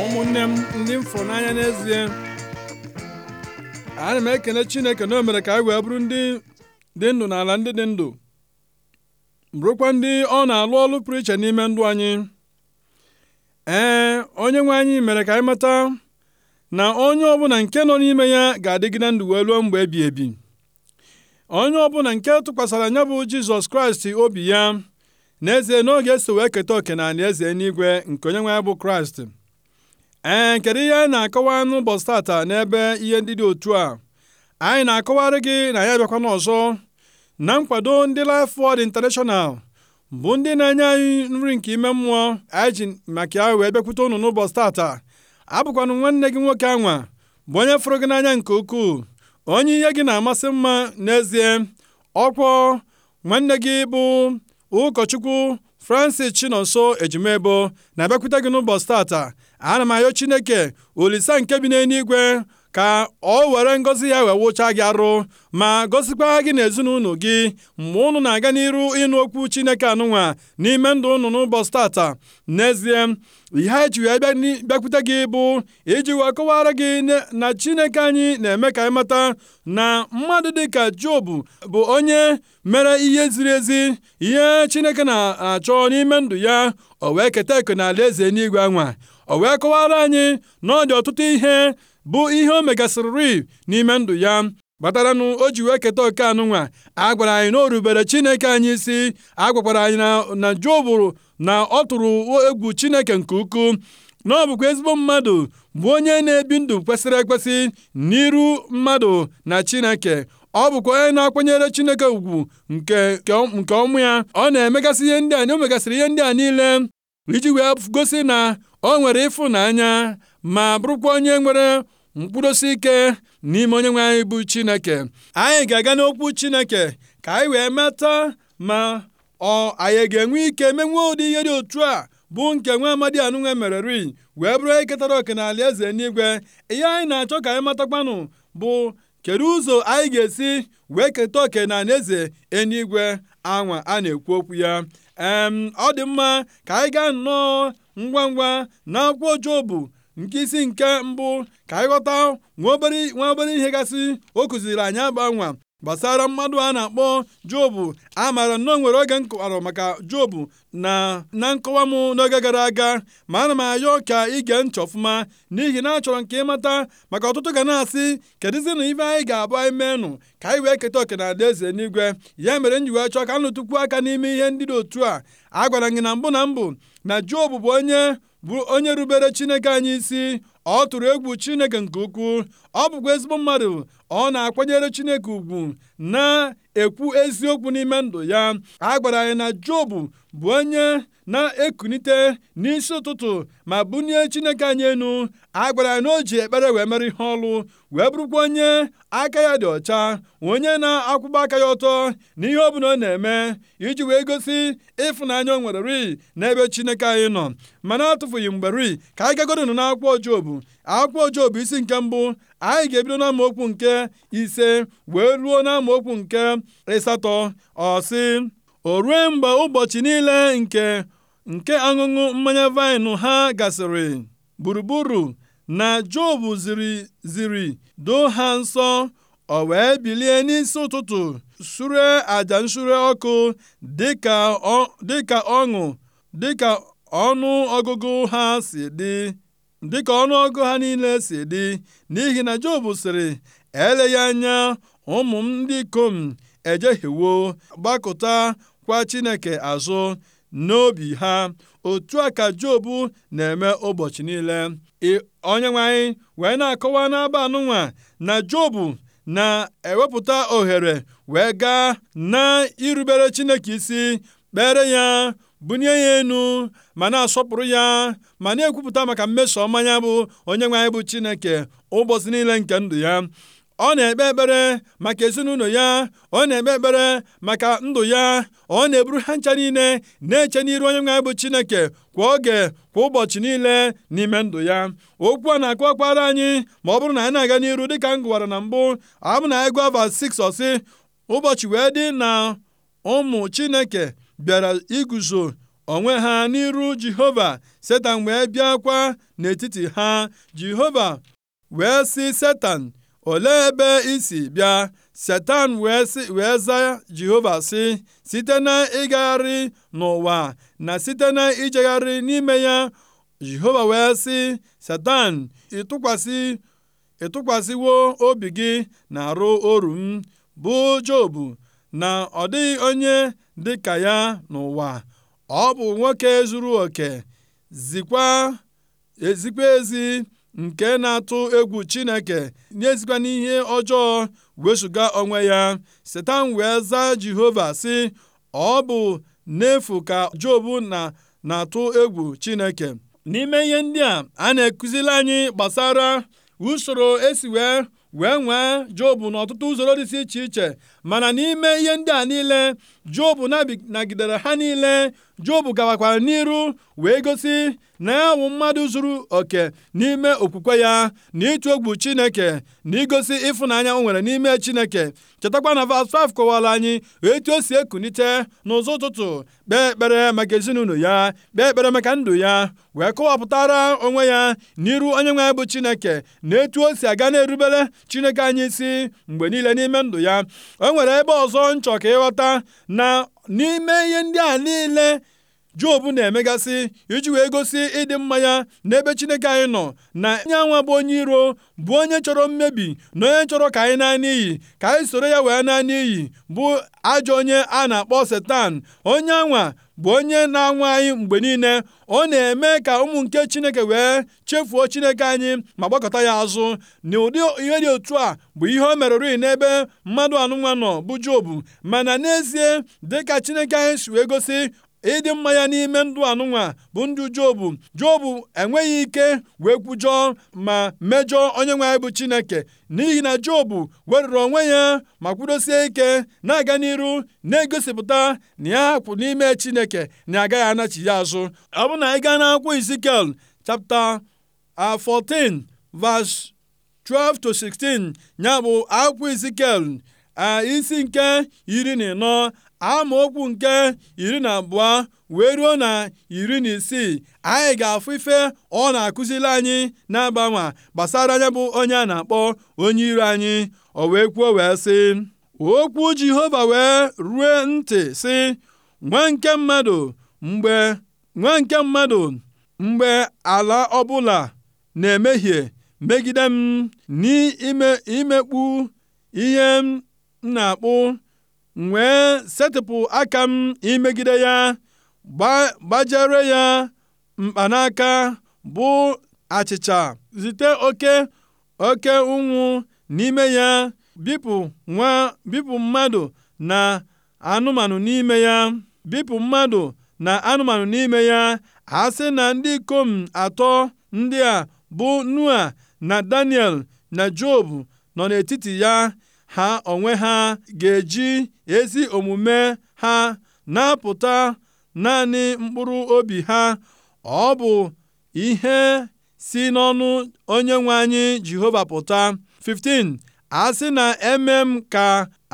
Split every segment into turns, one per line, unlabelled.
ụmụnne m ndị m fụrụ n'anya n'ezie ana m ekene chineke na o mere ka anyị wee bụrụ ndị dị ndụ n'ala ndị dị ndụ bụrụkwa ndị ọ na-alụ ọlụ pụrụ iche n'ime ndụ anyị ee onye nwe anyị mere ka anyị mata na onye ọbụla nke nọ n'ime ya ga-adịgide ndụ wee ruo mgbe ebi ebi onye ọbụla nke tụkwasara ya bụ jizọs kraịst obi ya n'ezie n'oge eso wee keta oke na eze n'igwe nke onyenwe nwe bụ kraịst ee kedu ihe na-akọwa n'ụbọchị tata n'ebe ihe ndị dị otu a anyị na-akọwarị gị na ya bịakwana ọzọ na nkwado ndị Life Word International bụ ndị na-enye anyị nri nke ime mmụọ anyị ji maka ya wee bịakwute unu n'ụbọchị tata abụkwanụ nwanne gị nwoke anwa bụ onye fụrụ gị n'anya nke ukwuu onye ihe gị na-amasị mma n'ezie ọkwọ nwanne gị bụ ụkọchukwu Francis Chinonso Ejimebo na-abịakwute gị n'ụbọchị tata. Ana m arịọ Chineke olise nke bi n'eluigwe ka ọ were ngọzi ya wụcha gị arụ ma gọzikwa gị na ezinụlọ gị mgbe ụnụ na-aga n'iru ịnụ okwu Chineke anụnwa n'ime ndụ ụnụ n'ụbọchị tata n'ezie ihe anyị ji ya bịakwute gị bụ iji wee kọwara gị na Chineke anyị na-eme ka anyị mata na mmadụ dịka Jobu bụ onye mere ihe ziri ezi ihe Chineke na-achọ n'ime ndụ ya o wee keta na n'ala eze n'igwe anwa o wee kọwara anyị na ọ dị ọtụtụ ihe bụ ihe o megasịrịrị n'ime ndụ ya kpataranụ o ji wee keta oke nwa a gwara anyị na o rubere chineke anyị isi a gwakwara anyị na Job na ọ tụrụ egwu chineke nke ukwuu na ọ bụkwa ezigbo mmadụ bụ onye na-ebi ndụ kwesịrị ekwesị n'iru mmadụ na chineke ọ bụkwa onye na-akwanyere chineke ugwu nke nke ọmụ ya ọ na-emegasị ihe ndị a o megasịrị ihe ndị a niile iji wee gosi na o nwere ịfụnanya ma bụrụkwa onye nwere mkpụrụosi ike n'ime onyenwe anyị bụ Chineke anyị ga-aga n'okwu Chineke ka anyị wee mata ma ọ anyị ga-enwe ike menwee ụdị ihe dị otu a bụ nke nwa amadi anụnwe mereri wee bụrụ eketara oke n'ala eze n'igwe ihe anyị na-achọ ka anyị matakwanụ bụ kedu ụzọ anyị ga-esi wee keta oke n'ala eze enigwe anwa a na-ekwu okwu ya ee ọ dị mma ka anyị gaa nnọọ ngwa ngwa na akwụkwọ Jobu nke isi nke mbụ ka anyị ghọta nwa obere ihe gasị o kụziri anyị agbanwa gbasara mmadụ a na-akpọ jobu a maara nnọọ nwere oge m maka jobu na na nkọwa m n'oge gara aga ma ana m ayọ ka ige nchọ ọfụma n'ihi na achọrọ nke ịmata maka ọtụtụ ga na-asị kedụzina ife anyị ga-abụ anyị meenụ ka anyị wee keta oke na eze n'igwe ya mere m ji wee chọọ ka nụtụkwu aka n'ime ihe ndị dị otu a a gwara gị na mbụ na mbụ na jobu bụ onye bụ onye rubere Chineke anyị isi ọ tụrụ egwu Chineke nke ukwuu ọ bụkwa ezigbo mmadụ ọ na-akwanyere Chineke ugwu na ekwu eziokwu n'ime ndụ ya a gwara anyị na jobu bụ onye na-ekunite n'isi ụtụtụ ma bunie Chineke anyị enu a gwara anyị na o ji ekpere wee mere ihe ọlụ wee bụrụkwa onye aka ya dị ọcha onye na-akwụba aka ya ọtọ n'ihe ọ bụla ọ na-eme iji wee gosi ịfụnanya o nwere ri n'ebe Chineke anyị nọ mana atụfughị mgbe ri ka anyị nọ n'akwụkwọ Job akwụkwọ Job isi nke mbụ anyị ga-ebido n'amaokwu nke ise wee ruo n'amaokwu nke ịsatọ ọ o rue mgbe ụbọchị niile nke nke aṅụṅụ mmanya vaịnụ ha gasịrị gburugburu na Job ziri ziri doo ha nsọ o wee bilie n'isi ụtụtụ sure aja nsure ọkụ dịka ọṅụ dịka ọnụ ọgụgụ ha si dị dịka ọnụọgụ ha niile si dị n'ihi na Job sịrị eleghị anya ụmụ m ndị ikom ejehiewo gbakụta kwa Chineke azụ n'obi ha otu a ka Job na-eme ụbọchị niile Onyenwe anyị wee na-akọwa n'aba anụnwa na Job na-ewepụta ohere wee gaa na irubere Chineke isi kpere ya bunye ya enu ma na-asọpụrụ ya ma na-ekwupụta maka mmeso ọma ya bụ onye anyị bụ Chineke ụbọchị niile nke ndụ ya ọ na-ekpe ekpere maka ezinụlọ ya ọ na-ekpe ekpere maka ndụ ya ọ na-eburu ha ncha niile na-eche n'iru onye anyị bụ Chineke kwa oge kwa ụbọchị niile n'ime ndụ ya okwu a na-akụ akwara anyị ma ọ bụrụ na anyị na-aga n'iru dịka m gụwara na mbụ abụ na ego ava 6 ọsị ụbọchị wee dị na ụmụ Chineke bịara iguzo onwe ha n'iru Jehova Setan wee bịakwa n'etiti ha Jehova wee sị Setan ole ebe isi bịa Setan wee za Jehova sị site na ịgagharị n'ụwa na site na ijegharị n'ime ya Jehova wee sị Setan ịtụkwasị ịtụkwasịwo obi gị na arụ oru m bụ Job na ọ dịghị onye dịka ya n'ụwa ọ bụ nwoke zuru oke zikwa ezikwa ezi nke na-atụ egwu Chineke n'ezikwa n'ihe ọjọọ wezụga onwe ya Setan wee zaa Jehova sị ọ bụ n'efu ka jobu na na-atụ egwu Chineke n'ime ihe ndị a a na-ekụzili anyị gbasara usoro esi wee wee nwee jobu n'ọtụtụ usoro dịsị iche iche mana n'ime ihe ndị a niile jobu nagidere ha niile jobu gawakwara n'iru wee gosi na ya wụ mmadụ zuru oke n'ime okwukwe ya na ịtụ egwu chineke na igosi ịfụnanya o nwere n'ime chineke chetakwa na vas 5 kọwara anyị etu o e si ekunite n'ụzọ ụtụtụ kpee ekpere maka ezinụlọ ya kpee ekpere maka ndụ ya wee kọwapụtara onwe ya n'iru onye nwe bụ chineke na etu o si aga na-erubere chineke anyị isi mgbe niile n'ime ndụ ya nwere ebe ọzọ nchọ ka ịghọta na n'ime ihe ndị a niile Job na-emegasị iji wee gosi ịdị mma ya n'ebe Chineke anyị nọ na anwa bụ onye iro bụ onye chọrọ mmebi na onye chọrọ ka anyị naa n'iyi ka anyị soro ya wee naa n'iyi bụ ajọ onye a na-akpọ Setan onye anwa bụ onye na-anwụ anyị mgbe niile ọ na-eme ka ụmụ nke chineke wee chefuo chineke anyị ma gbakọta ya azụ na ụdị ihe dị otu a bụ ihe o merụrụ n'ebe mmadụ anụnwa nọ bụ jobu mana n'ezie dị ka chineke anyị si wee gosi ịdị mma ya n'ime ndụ anụnwa bụ ndụ jobu jobu enweghị ike wee kwujọọ ma mejọọ onye nwe anyị bụ chineke n'ihi na jobu weruru onwe ya ma kwudosie ike na-aga n'iru na-egosipụta na ya kwụ n'ime chineke na agaghị anachi ya azụ ọ bụ na anyị gaa n'akwụkwọ izikiel chapta 14 verse 12 to 16 ya bụ akwụkwọ izikel isi nke iri na ịnọ okwu nke iri na abụọ wee ruo na iri na isii anyị ga-afụ ife ọ na-akụzili anyị na-agbanwa gbasara anya bụ onye a na-akpọ onye iro anyị o wee kwuo wee sị okwu Jehova wee rue ntị sị nwa nke mmadụ mgbe nwa mmadụ mgbe ala ọbụla na-emehie megide m n'imekpu ihe m m na-akpụ m wee setịpụ aka m imegide ya gbajere ya mkpanaka bụ achịcha zite oke oke ụnwụ n'ime ya bipụ nwa bipụ mmadụ na anụmanụ n'ime ya bipụ mmadụ na anụmanụ n'ime ya a sị na ndị ikom atọ ndị a bụ Noa na Daniel na Job nọ n'etiti ya ha onwe ha ga-eji ezi omume ha napụta naanị mkpụrụ obi ha. Ọ bụ ihe si n'ọnụ onye nwe anyị Jehova pụta. 15 A sị na eme m ka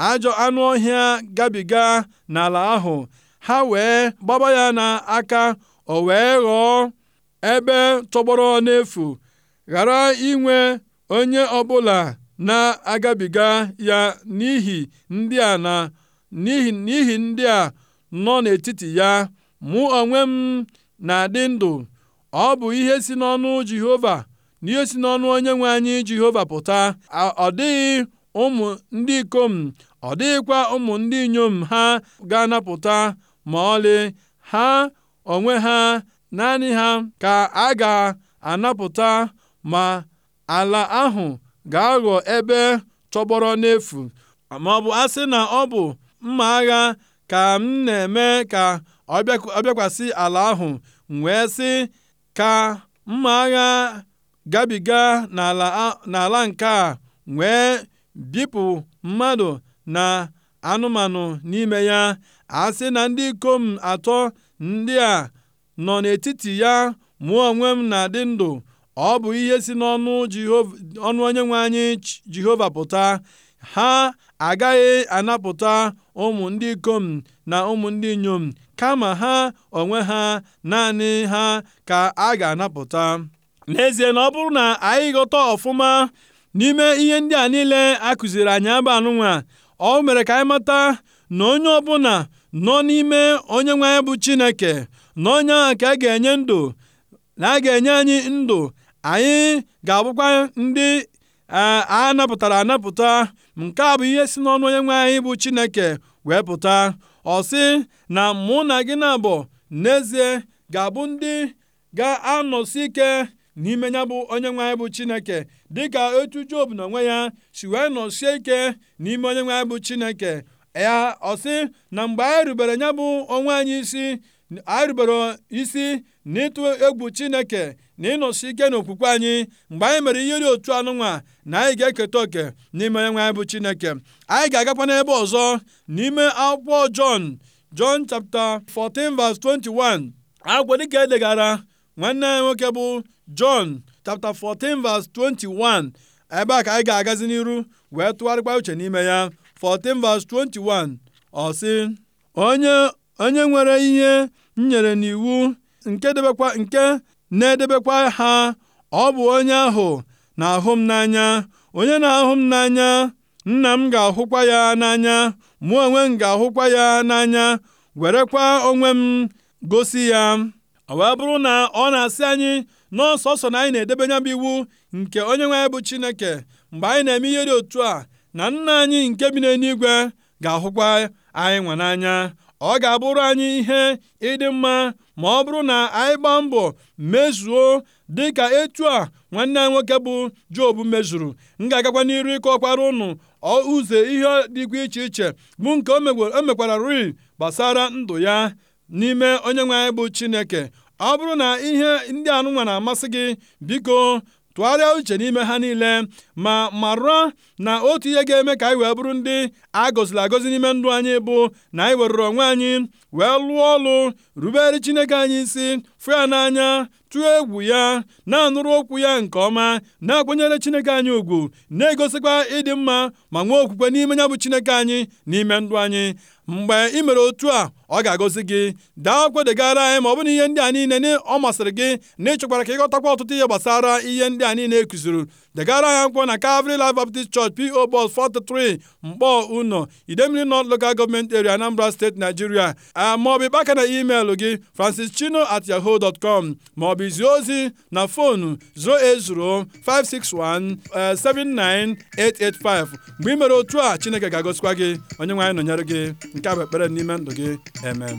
ajọ anụ ọhịa gabiga n'ala ahụ, ha wee gbaba ya n'aka o wee ghọọ ebe tọgbọrọ n'efu, ghara inwe onye ọbụla na-agabiga ya n'ihi ndị a n'ihi ndị a nọ n'etiti ya mụ onwe m na-adị ndụ ọ bụ ihe si n'ọnụ Jehova na ihe si n'ọnụ Onyenwe anyị Jehova pụta ọ dịghị ụmụ ndị ikom ọ dịghịkwa ụmụ ndị inyom ha ga-anapụta ma ọlị ha onwe ha naanị ha ka a ga-anapụta ma ala ahụ ga-aghọ ebe tọgbọrọ n'efu ma ọ bụ asị na ọ bụ mma agha ka m na-eme ka ọ bịakwasị ala ahụ wee sị ka mma agha gabiga n'ala nke a wee bipụ mmadụ na anụmanụ n'ime ya a sị na ndị ikom atọ ndị a nọ n'etiti ya mụọ onwe m na-adị ndụ ọ bụ ihe si n'ọnụ onye nwe onyenwe anyị Jehova pụta ha agaghị anapụta ụmụ ndị ikom na ụmụ ndị inyom kama ha onwe ha naanị ha ka a ga-anapụta n'ezie na ọ bụrụ na anyị ghọta ọfụma n'ime ihe ndị a niile a kụziri anyị abụ anụnwa ọ mere ka anyị mata na onye ọbụla nọ n'ime onye nwe anyị bụ Chineke na onye ahụ ka a ga-enye ndụ na a ga-enye anyị ndụ anyị ga-abụkwa ndị e, a napụtara anapụta nke a bụ ihe si n'ọnụ onye nwe anyị bụ Chineke wee pụta ọ sị na mụ na gị na abụ n'ezie ga-abụ ndị ga-anọsi ike n'ime ya bụ onye nwe anyị bụ Chineke dịka etu Job na onwe ya si wee nọsie ike n'ime onye nwe anyị bụ Chineke ya ọ sị na mgbe anyị rubere ya bụ onwe anyị isi anyị rubere isi n'ịtụ egwu Chineke na ịnọsi ike n'okwukwe anyị mgbe anyị mere ihe dị otu anụnwa na anyị ga-eketa oke n'ime onye nwe anyị bụ Chineke anyị ga-agakwa n'ebe ọzọ n'ime akwụkwọ Jọn Jọn chapta 14 verse 21 agwọ dịka edegara nwanne anyị nwoke bụ Jọn chapta 14 verse 21 ebe a ka anyị ga-agazi n'iru wee tụgharịkwa uche n'ime ya 14 verse 21 ọ sị onye onye nwere ihe nyere n'iwu nke debekwa nke na-edebekwa ha. Ọ bụ onye ahụ na-ahụ m n'anya. Onye na-ahụ m n'anya, Nna m ga-ahụkwa ya n'anya. Mụ onwe m ga-ahụkwa ya n'anya, werekwa onwe m gosi ya. Ọ wee bụrụ na ọ na-asị anyị n'ọsọsọ na anyị na-edebe nya bụ iwu nke nwe anyị bụ Chineke mgbe anyị na-eme ihe dị otu a na nna anyị nke bi n'eluigwe ga-ahụkwa anyị nwa n'anya ọ ga-abụrụ anyị ihe ịdị mma ma ọ bụrụ na anyị gbaa mbọ mezuo dịka etu a nwanne anyị nwoke bụ Job mezuru m ga-agakwa n'iru ọkwara ụnụ ụzọ ihe dịkwa iche iche bụ nke o mekwara rịị gbasara ndụ ya n'ime onye nwe anyị bụ Chineke ọ bụrụ na ihe ndị anụnwa na-amasị gị biko tụgharịa uche n'ime ha niile ma marụa na otu ihe ga-eme ka anyị wee bụrụ ndị a gọziri agọzi n'ime ndụ anyị bụ na anyị werụrụ onwe anyị wee lụọ ọlụ rubere Chineke anyị isi fụ ya n'anya tụọ egwu ya na-anụrụ okwu ya nke ọma na-akwanyere Chineke anyị ùgwù na-egosikwa ịdị mma ma nwee okwukwe n'ime ya bụ Chineke anyị n'ime ndụ anyị Mgbe ị mere otu a, ọ ga-agọzi gị. Daa kwedegara anyị ma ọ bụrụ na ihe ndị a niile ọ masịrị gị na ịchọkwara ka ịghọtakwa ọtụtụ ihe gbasara ihe ndị a niile e kụziri Degara anyị akwụkwọ na Calvary Life Baptist Church P.O. Box 43 Mkpọ uno Idemili not Local Government Area, Anambra State, Nigeria. maọbụ ịkpaka na email gị francis chino at francischino@yahoo.com maọbụ izi ozi na fonu 561-79-885. Eh, Mgbe ị mere otu a, Chineke ga-agọzikwa gị. Onyenwe anyị nọnyere gị. nke a bụ ekpere n'ime ndụ gị emem